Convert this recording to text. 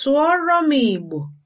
Sụọrọ m Igbo